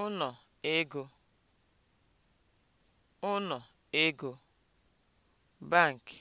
ụnọ ego ụnọ ego bankị.